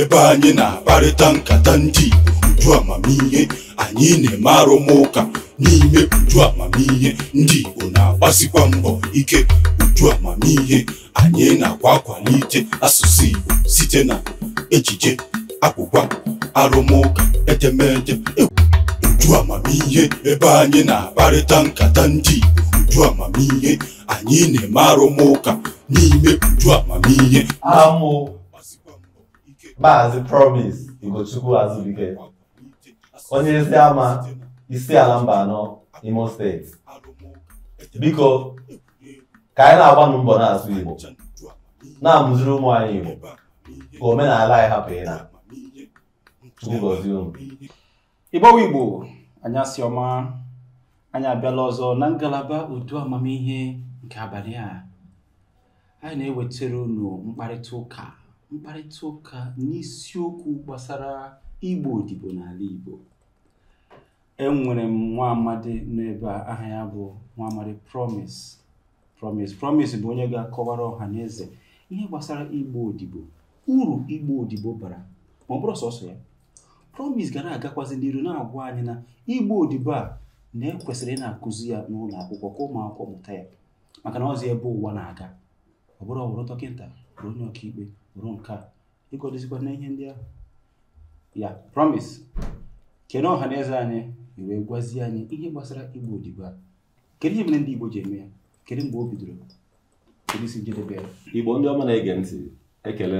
ebe anyị na-akparịta nkata ndị uju amamihe anyị na-eme arụmụka n'ime uju amamihe ndị Igbo na-agbasikwa mbọ ike uju amamihe anyị na-akwa akwalite asụsụ Igbo site na ejije akwụkwa arụmụka edemede e uju amamihe ebe anyị na-akparịta nkata ndị Igbo uju amamihe anyị na-eme arụmụka n'ime uju amamihe Maazị Promise Igochukwu Azubike onye ezi ama isi ala mba anọ Imo steeti biko ka anyị na-agbanụ mbọ na-asụ Igbo na-amụziri ụmụ anyị Igbo ka omenala anyị hapụ ịda igbowe Igbo Anyasioma ọma anyị abịala ọzọ na ngalaba udo amamihe nke abalị a anyị na-ewetara unu mkparịta ụka mkparịta ụka n'isiokwu gbasara igbo odibo n'ala igbo enwere m nwa amadi n'ebe aha ya bụ nwa amadi promise promise promise bụ onye ga-akọwara ọha na eze ihe gbasara igbo odibo uru igbo odibo bara ma ọ bụrụ sọsọ ya promise ga na-agakwazi n'iru na-agwa anyị na igbo odibo a na ekwesịrị ị na-akụzi ya n'ụlọ akwụkwọ ka ụmụ akwụkwọ mụta ya maka na ọzọ ebe ụwa na-aga ọ bụrụ bụrụ dọkịta bụrụ onye ọkaikpe ruo nke a ịkwadozikwa na ihe ndị ahụ ya promise kere ọha na eze anyị wee gwazie anyị ihe gbasara igbu odibo a kedu ihe mere ndị igbo ji eme ya kedu mgbe o bidoro kedu isi njedebe ya igbo ndị ọma na-ege ntị ekele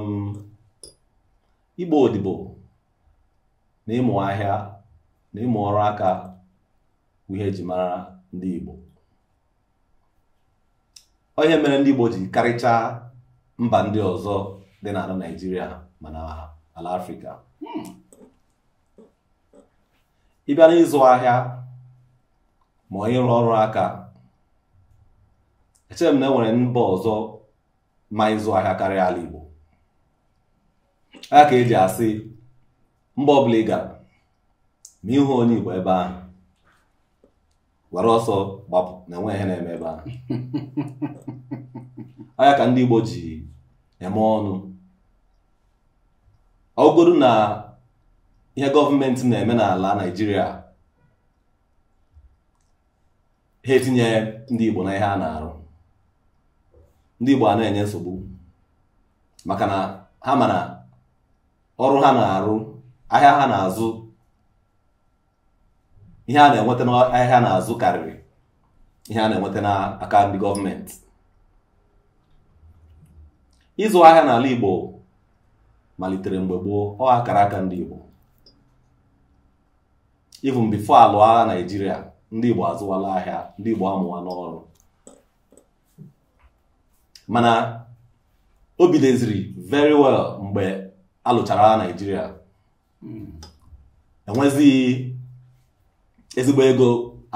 m igbo odibo na ịmụ ahịa na ịmụ ọrụ aka ihe eji mara ndị Igbo onye mere ndị Igbo ji karịchaa mba ndị ọzọ dị n'ala Naịjirịa na ala Afrịka hmm. ịbịa n'ịzụ ahịa ma onye rụọ ọrụ aka echere m na e nwere mba ọzọ ma ịzụ ahịa karịa ala Igbo eji asị mba ọbụla ị gara ma ịhụ onye Igbo ebe ahụ were ọsọ gbapụ na enwe ihe na-eme ebe ahụ anya ka ndị Igbo ji eme ọnụ ọ na ihe gọọmenti na-eme n'ala Naịjirịa ha etinye ndị Igbo na ihe a na-arụ ndị Igbo a na-enye nsogbu maka na ha ma ọrụ ha na-arụ ahịa ha na-azụ ihe a na-enweta n'ahịa na-azụ karịrị ihe a na-enweta n'aka ndị gọọmenti ịzụ ahịa n'ala Igbo malitere mgbe gboo ọ akara aka ndị Igbo even before alụọ agha Naịjirịa ndị Igbo azụwala ahịa ndị Igbo amụwa n'ọrụ mana o bidoziri very well mgbe alụchara agha Naijiria. Hmm. enwezighi ezigbo ego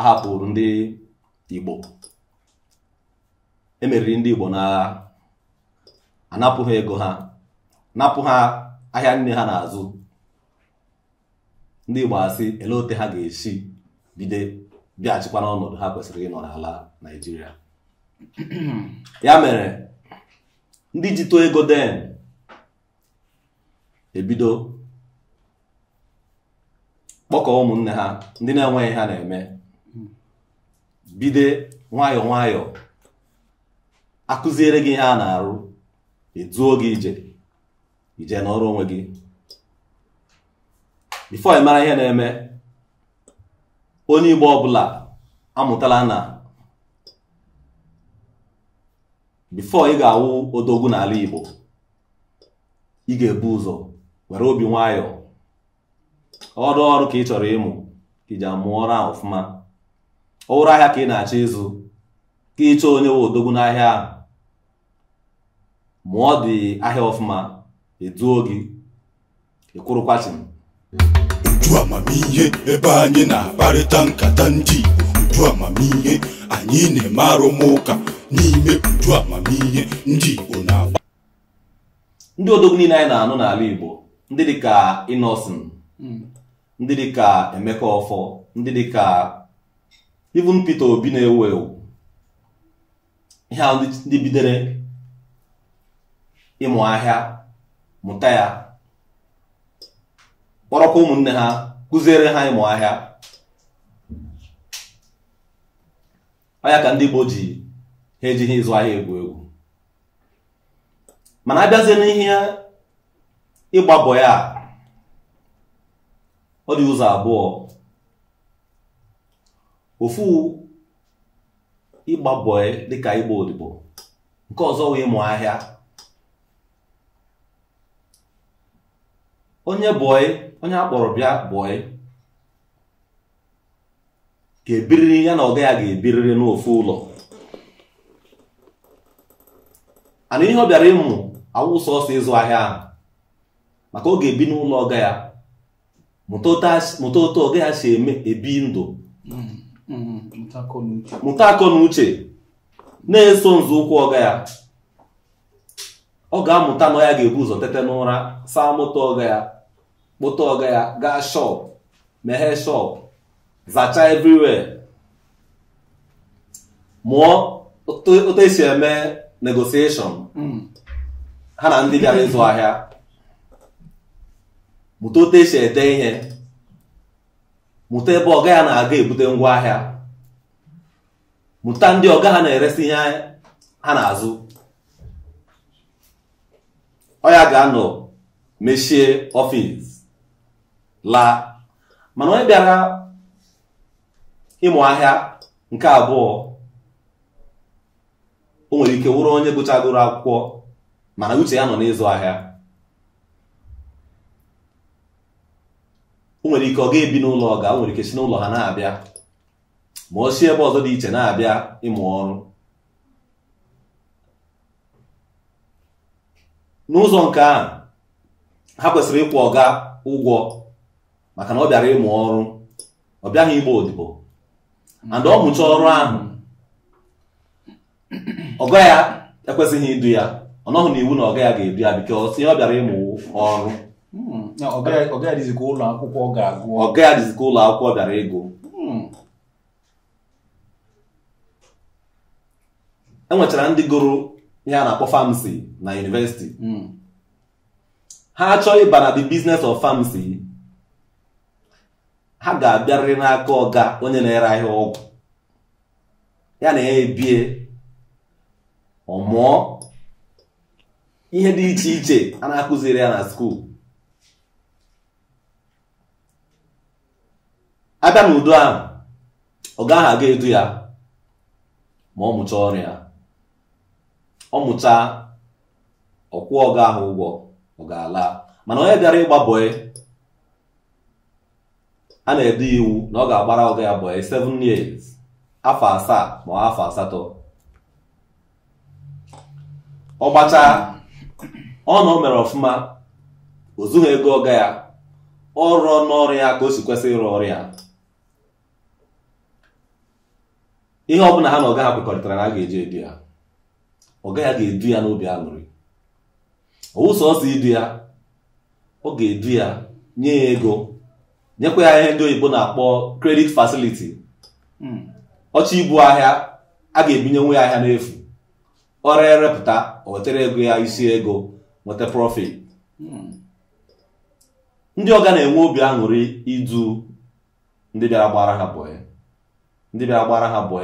ahapụrụ ndị Igbo emeriri ndị Igbo n'agha anapụ ego ha napụ ha ahịa nne ha n'azụ ndị Igbo asị ele ote ha ga-esi bido bịaghachikwa n'ọnọdụ ha kwesịrị ịnọ n'ala naijiria ya mere ndị ji too ego den ebido mkpọkọ ụmụnne ha ndị na-enweghị ha na-eme bido nwayọọ nwayọọ akụziere gị ihe a na-arụ eduo gị ije ije n'ọrụ onwe gị bifo ị ihe na-eme onye Igbo ọbụla amụtala na bifo ị ga-awụ odogwu n'ala Igbo ị ga-ebu ụzọ nwere obi nwayọọ ọrụ ọrụ ka ị chọrọ ịmụ ka iji amụọ ọrụ ahụ ọfụma ọwụrụ ahịa ka ị na-achọ ịzụ ka ịchọ onye we odogwu n'ahịa ahụ mụọ dị ahịa ọfụma eduo gị m. uju amamihe ebe anyị na-akparịta nkata ndị Igbo uju amamihe anyị na-eme arụmụka n'ime uju amamihe ndị Igbo na-agba ndị odogwu niile anyị na-anụ n'ala Igbo ndị dịka Innocent hmm. ndị dịka Emeka Ọfọ ndị dịka even Peter Obi na-ewu ewu ihe ndị bidere ịmụ ahịa mụta ya kpọrọkwa ụmụnne ha kụziere ha ịmụ ahịa ọya ka ndị Igbo ji ha ejighị ịzụ ahịa egwu egwu mana abịazie n'ihe ịgbabọ ya ọ dị ụzọ abụọ ofu ịgba bọị dịka ịgba odibo nke ọzọ wee mụọ ahịa onye bọị onye akpọrọ bịa bọị ga-ebiriri ya na ọga ya ga-ebiriri n'ofu ụlọ ana ihe ọ bịara ịmụ awụ ọsọ ịzụ ahịa ahụ maka ọ ga-ebi n'ụlọ ọga ya mụta otu ọ ha si ebi ndụ mụta akọ na uche na-eso nzọụkwụ ọga ya ọ ga-amụta na ya ga-ebu ụzọ tete n'ụra saa mụta ọga ya kpụta ọga ya gaa shọp meghee shọp zachaa everywhere mụọ otu esi eme negosieshon mm. ha na ndị bịara ịzụ ahịa mụta e esi ede ihe mụta ebe ọga ya na-aga ebute ahịa mụta ndị ọga ha na-eresi ihe ha na-azụ ọ ya ga-anọ mechie ọfịs laa mana onye bịara ịmụ ahịa nke abụọ o nwere ike wụrụ onye gụchagoro akwụkwọ mana uche ya nọ n'ịzụ ahịa o nwere ike ọ ga-ebi n'ụlọ ọga o nwere ike si n'ụlọ ha na-abịa ma o si ebe ọzọ dị iche na-abịa ịmụ ọrụ n'ụzọ nke ahụ ha kwesịrị ịkwụ ọga ụgwọ maka na ọ bịara ịmụ ọrụ ọ bịaghị igba odibo and ọ mụchaa ọrụ ahụ ọga ya ekwesịghị idu ya ọ nọghị n'iwu na ọga ya ga-edu ya bikọs ihe ọ bịara ịmụ ọrụ ọga adịzi ụlọ akwụkwọ ga-agụ ụlọ akwụkwọ bịara hmm. E enwechara ndị gụrụ ihe a na-akpọ famsi na yunivesiti hmm. ha chọọ ịba na the business of famsi ha ga-abịarịrị n'aka ọga onye na-ere ahịa ọgwụ ya na ya ebie ọmụọ ihe dị iche iche a na-akụziri ya na skuul abịa n'udo ahụ ọ gaghị aga edu ya ma ọ mụcha ọrụ ọ mụcha ọkwụ ọga ahụ ụgwọ ọ ga-ala mana onye bịara ịgba bọị a na edu iwu na ọ ga-agbara ọga ya bọị 7 years afọ asaa ma afọ asatọ ọ gbachaa ọ na o mere ọfụma o zughị ego ọga ya ọ rụọ n'ọrụ ya ka o si kwesị ịrụ ọrụ ya ihe ọ bụla ha na ọga ha kwekọrịtara na a ga-eji edu ya ọga ya ga-edu ya n'obi aṅụrị owu sọsọ idu ya ọ ga-edu ya nye ya ego nyekwa ya ihe ndị oyibo na-akpọ kredit facility hmm. ọcha ibu ahịa a ga-ebinye nwe ya ahịa n'efu ọrịa erepụta o ego ya isi ego nweta profit hmm. ndị ọga na-enwe obi aṅụrị idu ndị bịara gbara ha bọọ ndị bịa gbara ha bụ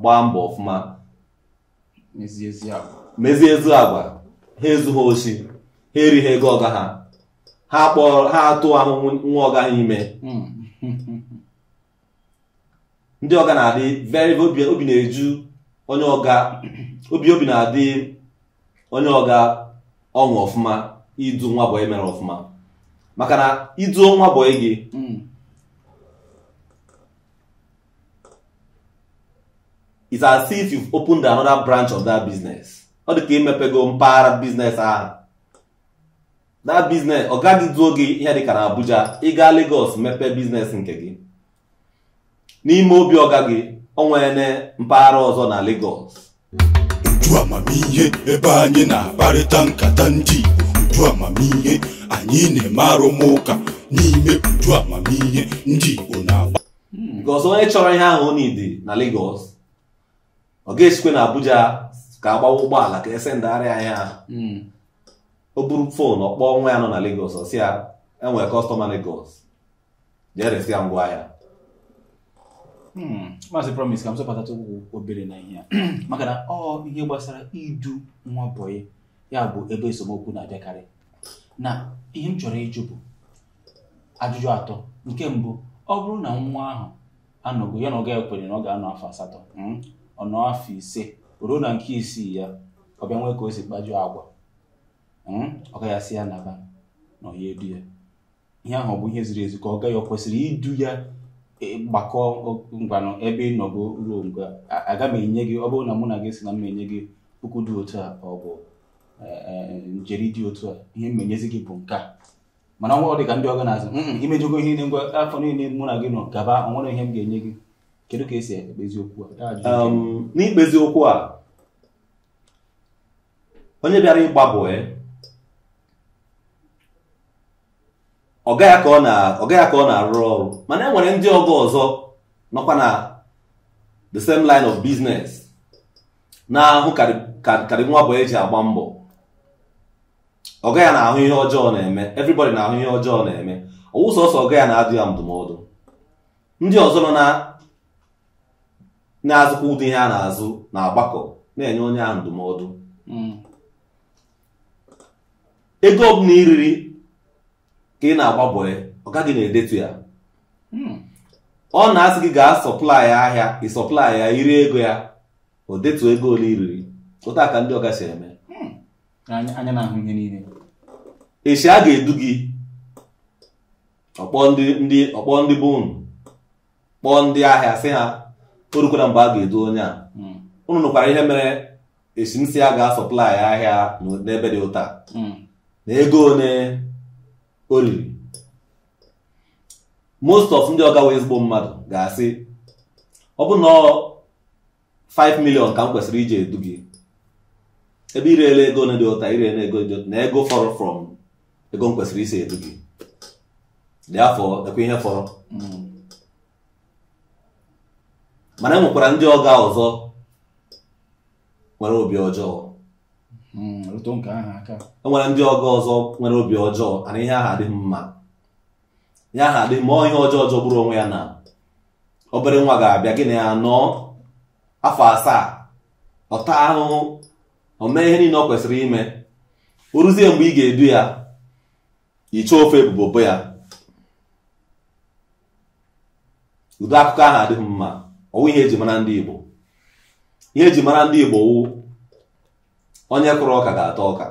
gbaa mbọ ọfụma mezie ezi agwa ha ezu ha oshi ha erighị ego ọga ha ha kpọrọ ha atụ ahụhụ nwa ọga ha ime hmm. ndị ọga na-adị very obi na-eju onye ọga obi obi na-adị onye ọga ọṅụ ọfụma idu nwa bụ e mere ọfụma maka na ịdụ nwa bụ e gị hmm. it's as if you've opened another branch of that business ọ dị ka imepego mpaghara biznes ahụ that business ọ gaghị duo gị ihe dịka na Abuja ịga Lagos mepe biznes nke gị n'ime obi ọga gị ọ nwere mpaghara ọzọ na Lagos uju amamihe ebe anyị na-akparịta nkata ndị Igbo uju amamihe anyị na-eme arụmụka n'ime uju amamihe ndị Igbo na-agba hmm, because onye chọrọ ihe ahụ ọ na-ede na Lagos ọ ga-esikwe na Abuja ka agbawa ụgbọala ka esendagharịa anyị anya hmm. o buru foonu ọ kpọọ nwa ya nọ na Lagos ọ sị ya enwere kọstọma legos jee resi ya ngwa ahịa hmm. maazị promise ka m sọpụtata ụkwụ obere na ihe ya maka na ọ ihe gbasara idu nwa boyi ya bụ ebe esemokwu na-abịakarị na ihe m chọrọ ịjụ bụ ajụjụ atọ nke mbụ ọ bụrụ na nwa ahụ anọgo ya na ọ ga-ekwere na ọ ga-anọ afọ asatọ hmm. ọnụ afọ ise ruo na nke isii ya ọ bịa nwee ka o si kpajuo agwa hmm? ọ gaghị asị ya naba na ọ ya edu ya ihe ahụ ọ bụ ihe ziri ezi ka ọ gaghị ọ kwesịrị idu ya e, gbakọọ ngwanụ ebe ị nọgo ruo nga aga m enye gị ọ bụrụ na mụ na gị si na m enye gị puku dị otu a ọ bụ e, e, njeri dị otu a ihe menyezi gị bụ nke a mana ọ dị ka ndị ọganazi imejugo ihe niile ngwa afọ niile mụ na gị nọ gaba ọ nwere ihe m ga-enye gị kedu ka esi ekpezi okwu a ah, um, n'ikpezi okwu a onye bịara ịgba bụ eh, ọ gaghị ka ọ na-arụ ọrụ mana e nwere ndị ọgọ ọzọ nọkwa na the same line of business na-ahụ karị nwa bụ eji agba mbọ ọga ya na-ahụ ihe ọjọọ na-eme everybody na-ahụ ihe ọjọọ na-eme ọwụ sọsọ ọga ya na-adụ ya ndụmọdụ ndị ọzọ nọ na na-azụkwa ụdị ihe a na-azụ na-agbakọ na-enye onye ahụ ndụmọdụ hmm. ego ọbụla iriri ka ị na-agbaboe ọ gaghị na-edetu ya hmm. ọ na-asị gị gaa sọplai ahịa ịsọplai ya iri ego ya o detu ego ole iriri ụta ka ndị ọka si eme hmm. anya echi a ga-edu gị ọkpọ ndị ọkpọ ndị kpọọ ndị ahịa sị ha o rukwara mgbe a ga-edu onye a hmm. unu nụkwara ihe mere esimsi a ga-asọplai ahịa n'ebe dị ụta hmm. na ego one o riri most of ndị ọgawa ezigbo mmadụ ga-asị ọ bụ na 5 ka m kwesịrị iji edu gị ebe irele ego one dị ụta irela ego dị na ego fọrọ from ego m kwesịrị isi edu gị dị afọ ekwe ihe fọrọ hmm. mana e nwekwara ndị ọga ọzọ nwere obi ọjọọ hmm, e nwere ndị ọga ọzọ nwere obi ọjọọ ana ihe aha adịghị mma ihe aha dị mma ihe ọjọọ ọjọọ bụrụ onwe ya na obere nwa ga-abịa gị na ya afọ asaa ọta ahụhụ o mee ihe niile ọ kwesịrị ime o ruzie mgbe ị ga-edu ya iche ofe ebubobo ya ụdị akụkọ ahụ adịghị mma ọwụ ihe eji mara ndị Igbo ihe eji mara ndị Igbo wụ onye kụrụ ọka ga-ata ọka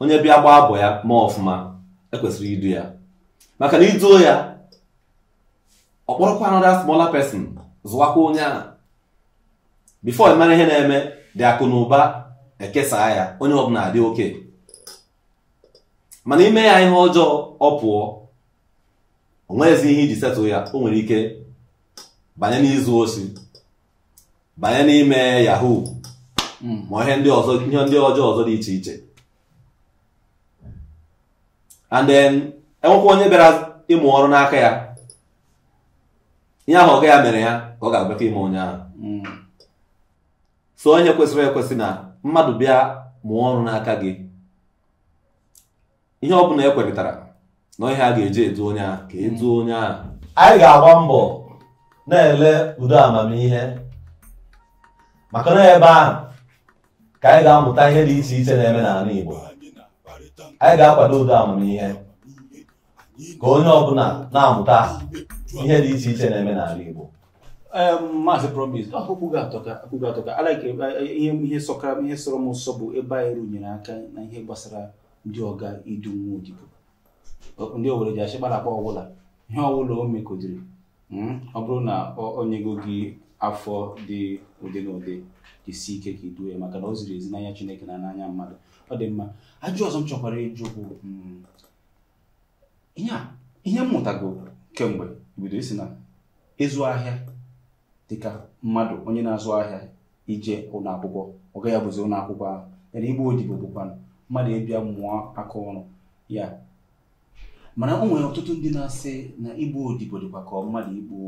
onye bịa gbaa abụ ya ma ọfụma ekwesịrị idu ya maka na iduo ya ọkpọrọkwa another smaller pesin zụwakwa onye a bifo mara ihe na-eme dị akụ na ụba ekesaa ya onye ọbụla adị oke mana ime ya ihe ọjọọ ọ pụọ o ihe iji setụ ya o nwere ike banye n'izu osi banye n'ime yahoo hmm. ma ihe ndị ọzọ ihe ndị ọjọọ ọzọ dị iche iche and then enwekwa onye bịara ịmụ ọrụ n'aka ya ihe ahụ ọga ya mere ya ka ọ ga-abịakọ ime onye ahụ hmm. so onye kwesịrị ekwesị na mmadụ bịa mụọ ọrụ n'aka gị ihe ọ bụla ekwerịtara na ihe a ga-eji edu onye ahụ ka eduo hmm. onye ahụ anyị ga-agba mbọ na-ele udo amamihe maka na ebe ahụ ka anyị ga-amụta ihe dị iche iche na-eme n'ala Igbo anyị ga-akwado udo amamihe ka onye ọbụla na-amụta ihe dị iche iche na-eme n'ala Igbo maazị promis ihe sọkara ihe sọrọ m nsọ bụ ebe anyị rụnyere aka na ihe gbasara ndị ọga idu nwa odibo ndị owere ji achịkpalakpa ọbụla ihe ọbụla o mekodiri Hmm? ọ bụrụ na ọ go gị afọ dị ụdị na ụdị isi ike ka iduo ya maka na o ziri ezi n'anya Chineke na n'anya mmadụ ọ dị mma ajụ ọzọ m chọkwara ịjụ bụ hmm, ihe mmụtago kemgbe bido isi na ịzụ ahịa dịka mmadụ onye na-azụ ahịa ije ụlọakwụkwọ ọga ọ gaghị ụlọakwụkwọ ụlọ ahụ yana igbe odibo bụkwa mmadụ ịbịa mmụọ aka ọrụ ya mana o nwere ọtụtụ ndị na-asị na igbu odibo dịkwa ka mmadụ igbu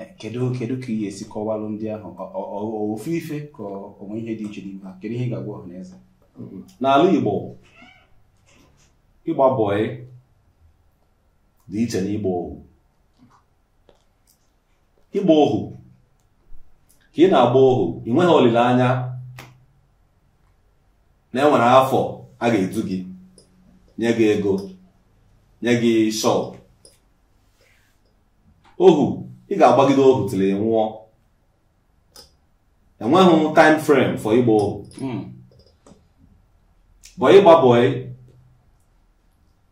eh, kedu kedu ka ị esi kọwalụ ndị ahụ ofu ife ka onwe ihe dị iche n'ime kedu ihe ị ga-agwa ọha n'eze mm-hmm. n'ala igbo ịgba bọị dị iche na ịgba ohu ịgba ohu ka ị na-agba ohu ị nweghị olileanya na enwere afọ a ga-edu gị nye gị ego nye gị shop ohu ị ga-agbagide ohu nwụọ enweghị time frame for ịgba ohu hmm. bọ gba bọị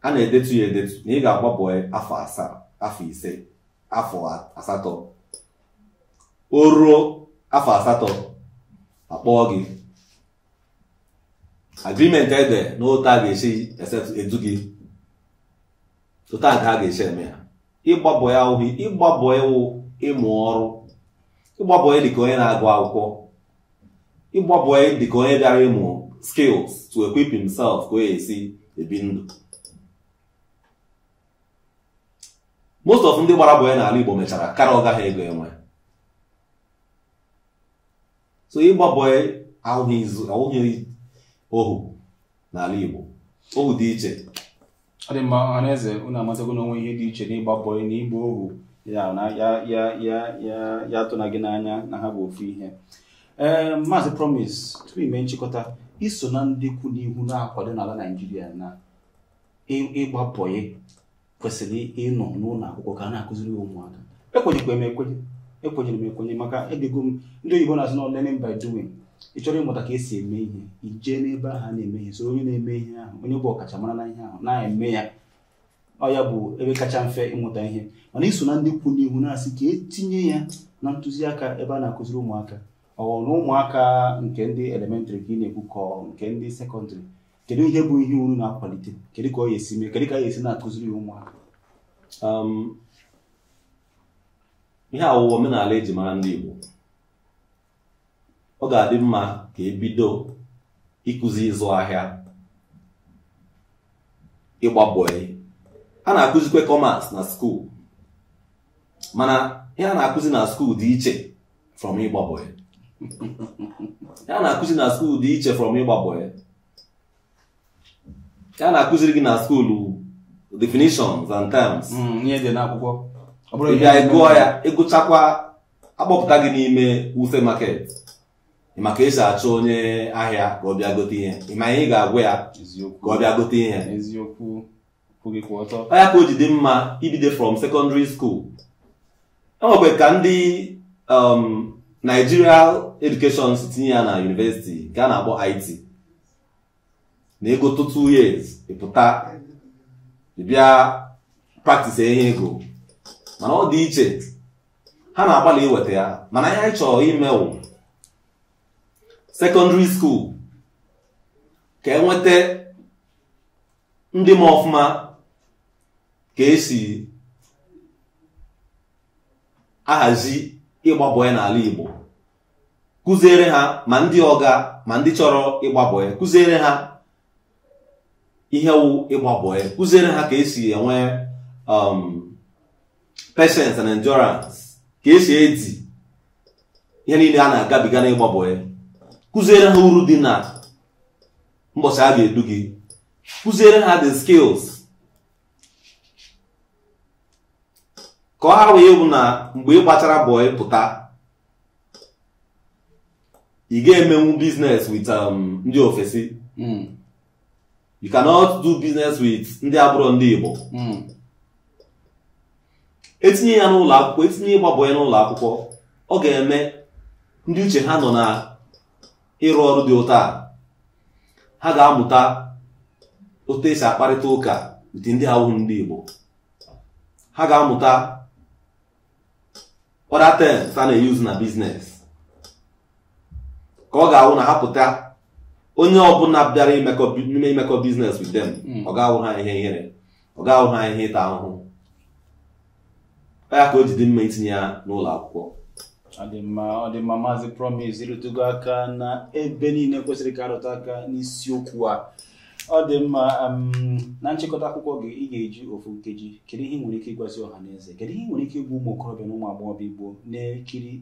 a na-edetu ya edetu na ị ga-agba bọị afọ asaa afọ ise afọ asatọ o ruo afọ asatọ akpọọ gị agrimenti ede na a ga-esi edu gị tụta nke a ga-esi eme ya ịgbabọ ya ụhụ ịgbabọ ịwụ ịmụ ọrụ ịgbabọ ya dịka onye na-agụ akwụkwọ ịgbabọ ya dịka onye bịara ịmụ skills to equip himself ka o esi ebi ndụ most of ndị gbara bọya n'ala Igbo mechara kara ọ gaghị ego enwe so ịgba ahụghị ohu n'ala Igbo ohu dị iche ọ dị mma unu amatago n'onwe ihe dị iche n'ịgba bọị na ịgba ohu ya tụna gị n'anya na ha bụ ofu ihe ee eh, maazị promise tupu ime nchịkọta iso na ndị kwu n'ihu na-akwado n'ala naijiria na ịgba bọị kwesịrị ịnọ n'ụlọ akwụkwọ ka a na-akụziri ụmụaka ekwenyekwa m ekwenye ekwenyere m ekwenye maka edego m ndị oyibo na-azụ na learning by doing ị chọrọ ịmụta ka esi eme ihe ijee n'ebe ahụ a na-eme ihe so onye na-eme ihe ahụ onye bụ ọkachamara na ihe ahụ na-eme ya ọ ya bụ ebe kacha mfe ịmụta ihe mana iso na ndị kwu n'ihu na-asị ka etinye ya na ntụziaka ebe a na-akụziri ụmụaka ọ na ụmụaka nke ndị elementrị ka ị na-ekwu ka nke ndị sekọndịrị kedu ihe bụ ihe unu na-akwalite kedu ka ọ ya esi mee kedu ka a ya esi na-akụziri ya ụmụaka um, ihe awụwa omenala eji mara ndị Igbo ọ ga-adị mma ka ebido ịkụzi ịzụ ahịa ịgba bọị a na-akụzikwe kọmers na skuul mana ihe a na-akụzi na skuul dị iche from ịgba bọị ihe a na-akụzi na skuul dị iche from ịgba bọị a na-akụziri gị na skuul definitions and terms hmm, ị bịa gụọ ya ịgụchakwa akpọpụta gị n'ime wuse market maka esi achọ onye ahịa ka ọ bịa gote ihe ịma ga-agwa ya ka ọ bịa gote ihe ọ ya ka o dị mma ibido from secondary school enwekwe ka ndị um, Nigerial education si tinye ya na university nke a na-akpọ IT na ego two years ịpụta bịa practice ihe ego mana ọ dị iche ha na-agbalị iweta ya mana ihe anyị chọrọ imewụ secondary school ka enweta ndị ma ọfụma ka esi ahazi ịgba n'ala Igbo kụziere ha ma ndị ọga ma ndị chọrọ ịgba kụziere ha ihe wụ ịgba kụziere ha ka esi enwe um, patience and endurance ka esi edi ihe niile a na-agabiga n'ịgba kụziere ha uru dị na mbọchị a ga-edu gị kụziere ha the skills ka ọ ha wee bụ na mgbe ị gbachara bọị pụta ị ga-emenwu business with um, ndị ofesi hmm. you cannot do business with ndị abụrụ ndị Igbo hmm. etinye ya n'ụlọ akwụkwọ etinye ịgba bọị n'ụlọ akwụkwọ ọ ga-eme ndị uche ha nọ na ịrụ ọrụ dị ụta a ha ga-amụta otu esi akparịta ụka dị ndị awụhụ ndị Igbo ha ga-amụta other terms a na-eyuzu na biznes ka ọ ga-awụ na ha pụta onye ọbụla bịara ime imekọ biznes witem them hmm. ọ ga-awụ ha ihe ihere ọ ga-awụ ha ihe ịta ahụhụ ya ka o ji dị mma itinye ya n'ụlọ akwụkwọ ọdịmma ọdịmma maazị promise ịrụtụgo aka na ebe niile kwesịrị ka arụta aka n'isiokwu a ọ dị mma na nchịkọta akwụkwọ gị ị ga-eji ofu nkeji kedu ihe nwere ike ịgwazi ọha na eze kedu ihe nwere ike ịgwa ụmụ okorobịa na ụmụ agbọghọbịa igbo na-ekiri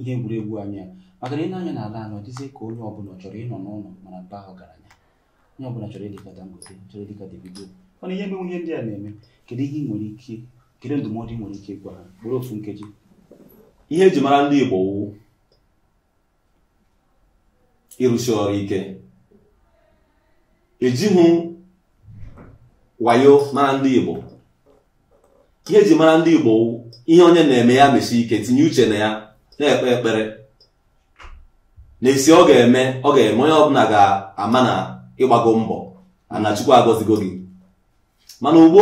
ihe egwuregwu anya maka na ịnanya n'ala ala dịzie ka onye ọbụla chọrọ ịnọ n'ụlọ mana baa ọgaranya onye ọbụla chọrọ ịdịka Dangote chọrọ ịdịka Davido mana ihe menwe ihe ndị a na-eme kedu ihe ị nwere ike kedu ndụmọdụ ị nwere ike ịgwa ha bụrụ ofu nkeji ihe eji mara ndị Igbo ịrụsi ọrụ ike ejighị wayo mara ndị Igbo ihe eji mara ndị Igbo ihe onye na-eme ya mesi ike tinye uche na ya na-ekpe ekpere n'isi ọ ga-eme ọ ga-eme onye ọbụla ga-ama na ịgbago mbọ ana Chukwu agọzigo gị mana ugbu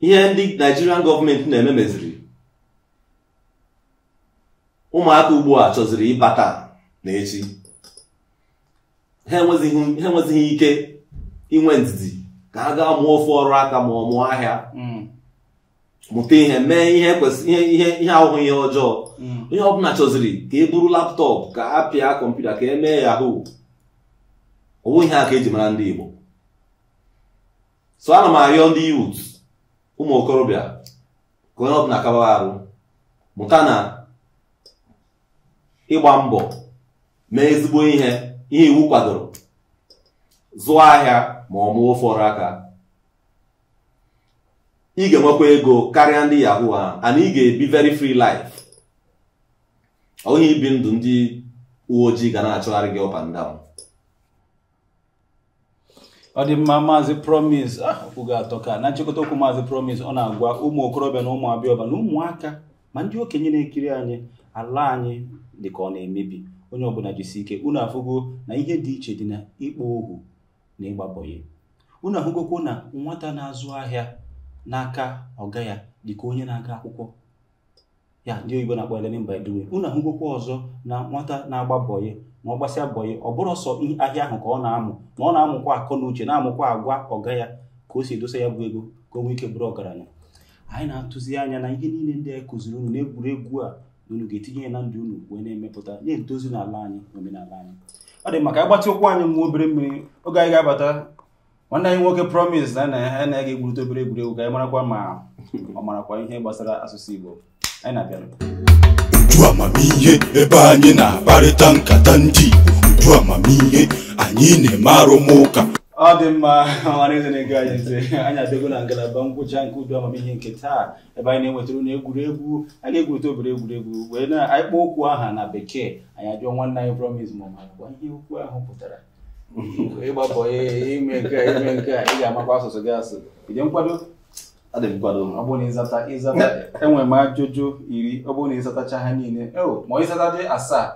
ihe ndị Nigerian gọọmenti na-eme meziri ụmụaka ugbu a chọziri ịbata n'echi ha enwezighị ike inwe ndidi ka ha gaa mụọ ofe ọrụ aka ma ọ mụọ ahịa mm. mụta ihe mee ihe ihe ahụhụ ihe ọjọọ mm. onye ọbụla chọziri ka e buru laptọpụ ka a pịa kọmputa ka e mee yahoo ọ bụ ihe aka ka eji mara ndị Igbo so ana m arịọ ndị youth ụmụ okorobịa ka na ọbụla mụta na ịgba mbọ mee ezigbo ihe ihe iwu kwadoro zụọ ahịa ma ọ mụọ ụfọdụ aka ị ga-enwekwa ego karịa ndị yahoo ha and ị ga-ebi very free life onye ibi ndụ ndị uwe ojii ga na-achọgharị gị up and down ọ dị mma maazị promise ah, kwugo atọ ka na nchịkọta okwu maazị promise ọ na-agwa ụmụ okorobịa na ụmụ abịọba na ụmụaka ma ndị okenye na-ekiri anyị ala anyị dị ka ọ na-emebi onye ọbụla jisi ike unu afụgo na ihe dị iche dị na ịkpọ ohu na ịgbabọghị unu ahụgokwo na nwata na-azụ ahịa n'aka ọga ya dịka onye na-aga akwụkwọ ya ndị oyibo na-akpọ learning unu ahụgokwo ọzọ na nwata na-agbabọghị ma ọ gbasịa bọnyị ya ọ bụrụ ọsọ ahịa ahụ ka ọ na-amụ na ọ na-amụkwa akọ na uche na-amụkwa agwa ọga ya ka o si edosa ya bụ ego ka o nwee ike bụrụ ọgaranya anyị na-atụzi anya na ihe niile ndị anyị kụziri unu na egwuregwu a unu ga-etinye ya na ndụ unu wee na-emepụta na-edozi n'ala anyị na omenala anyị ọ dị maka ịgbatị ụkwụ anyị nwa obere mmiri oge anyị ga-abata nwanne anyị nwoke promise na ya na ya ga-egwurite obere egwuregwu ka anyị marakwa ma ọ marakwa ihe gbasara asụsụ Igbo anyị na-abịara uju amamihe ebe anyị na-akparịta nkata ndị Igbo uju amamihe anyị na-eme arụmụka ọ dị mma ọmara eze na-ego anyị ntị anyị abịago na ngalaba ngwụcha nke udu amamihe nke taa ebe anyị na-enwetara na egwuregwu a ga-egwurịta obere egwuregwu wee na ịkpọ kpọọ okwu aha na bekee anyị ajụọ nwanne anyị promis ma ọ ma gwa ihe okwu ahụ pụtara ịgbapọ ime nke ime nke ị ga-amakwa asụsụ gị asụ ide nkwado enwe e m ajụjụ iri ọ bụrụ na ịzatacha ha niile e, ma ịzata dị asaa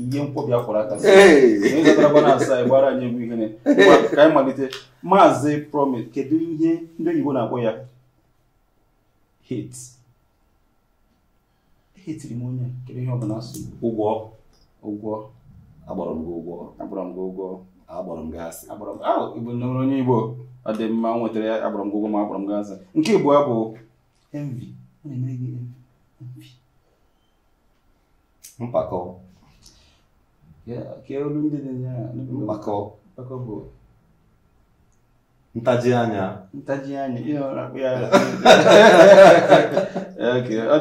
ihe nkwobi akwara aka ịzatarabana asaa gbara anyị egwu ihere ka anyị malite maazị promise kedu ihe ndị oyibo na-akpọ ya hate etiri m onye kedu ihe ọ bụla asụ ụgwọ ụgwọ agbara m gị ụgwọ agbara m gị ụgwọ agbọrọ m gị asị nọrọ onye igbo ọ dị mma nwetara ya agbọrọ m gị agbara ma agbọrọ m gị nke igbo ya bụ Mpako. mpakọ olu ndị bụ ntaji anya ntaji anya ihe ọ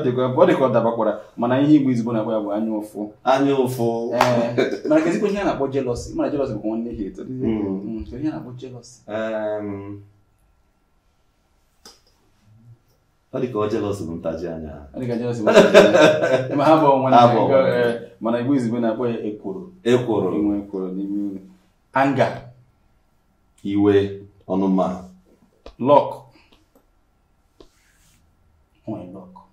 dịka ọ dịkwa dabakwara mana ihe igbo izigbo na-akpọ ya bụ anya ụfụ anya ụfụ eh, mana ka ezigbo ihe a na-akpọ jelọsi mana jelọsi bụkwa nwanne ihe eto mm. Mm, ihe a na-akpọ jelọs. ọ dị dịka ọ jelọs bụ ntaji anya ha bụ na-ekwu. Eh, mana igbo izigbo na-akpọ ya ekworo ekworo inwe ekworo n'ime anga iwe Ou no mar? Loco. Um é loco.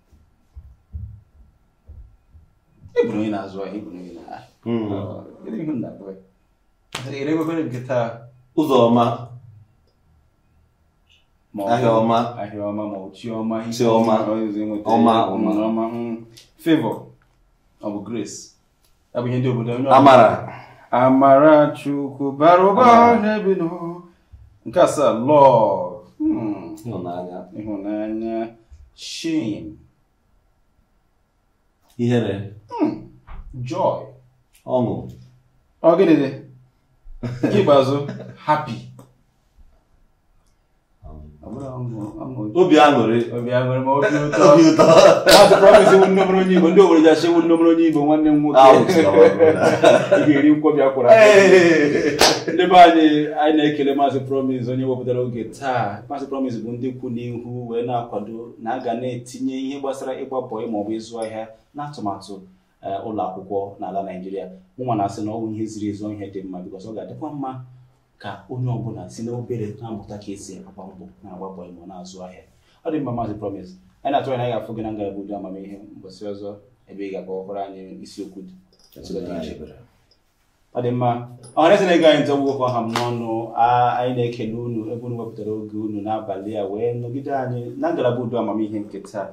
Ibnu yana zuwa Ibnu yana. Irin mun na kawai. Irai ba bane gita. Uzoma. Ahioma. Ahioma, Mauchioma. Chioma. Oma, Oma. Oma. Favor. Of grace. Abin yadda obodo onye Amara. Amara Chukwu bara ụba n'ebe n'ụwa. nke asaa love hmm. ịhụnanya ịhụnanya shame ihere hmm. joy ọṅụ ọ gịnị dị ikpeazụ happy obi aṅụrị obi ụtọ nọrọ onye igbo ndị obodo ji nne nnomere onye igbo nwanne m nwoke ị ga-eri nkwobi akwụrụ ndị be anyị anyị na-ekele maazị promise onye wepụtara oge taa maazị promise bụ ndị kwu n'ihu wee na-akwado na aga na-etinye ihe gbasara ịgba ọ bụ ịzụ ahịa na atụmatụ ụlọ akwụkwọ n'ala naijiria mụnwa na-asị na ọ bụ ihe ziri ezi ihe dị mma bikọs ọ ga-adịkwa mma ka onye ọbụla si na obere na-amụta ka esi agba mbọ na-agba mbọ ịmụ na-azụ ahịa ọ dị mma maazị promise anyị na-atụ anya ga-afụ gị na ngalaba udo amamihe mbọsị ọzọ ebe ị ga-agba ọhụrụ anyị isiokwu dị ọ dị mma ọhaneze na-ego anyị ntọ gwụgwọ ọha m n'ọnụ anyị na-ekele unu ebe unu wepụtara oge unu n'abalị a wee nọgide anyị na ngalaba udo amamihe nke taa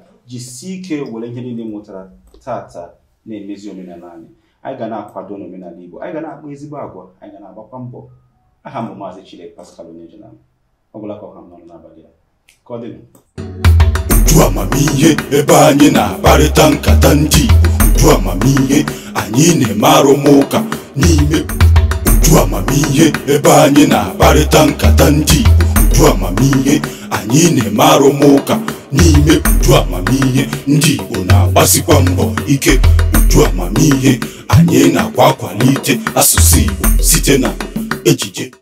sie ike were ihe niile mụtara tata na-emezi omenala anyị anyị ga na-akwado n'omenala Igbo anyị ga na-akpa ezigbo agwa anyị ga na-agbakwa mbọ aha m maazị Chidera Pascal Onyejilam ọbụla ọha m nọrọ n'abalị a ka ọ dịnụ uju amamihe ebe anyị na-akparịta nkata ndị uju amamihe anyị na-eme arụmụka n'ime uju amamihe ebe anyị na-akparịta nkata ndị uju amamihe anyị na-eme arụmụka n'ime uju amamihe ndị Igbo na-agbasikwa mbọ ike uju amamihe anyị na-akwa akwalite asụsụ Igbo site na ejije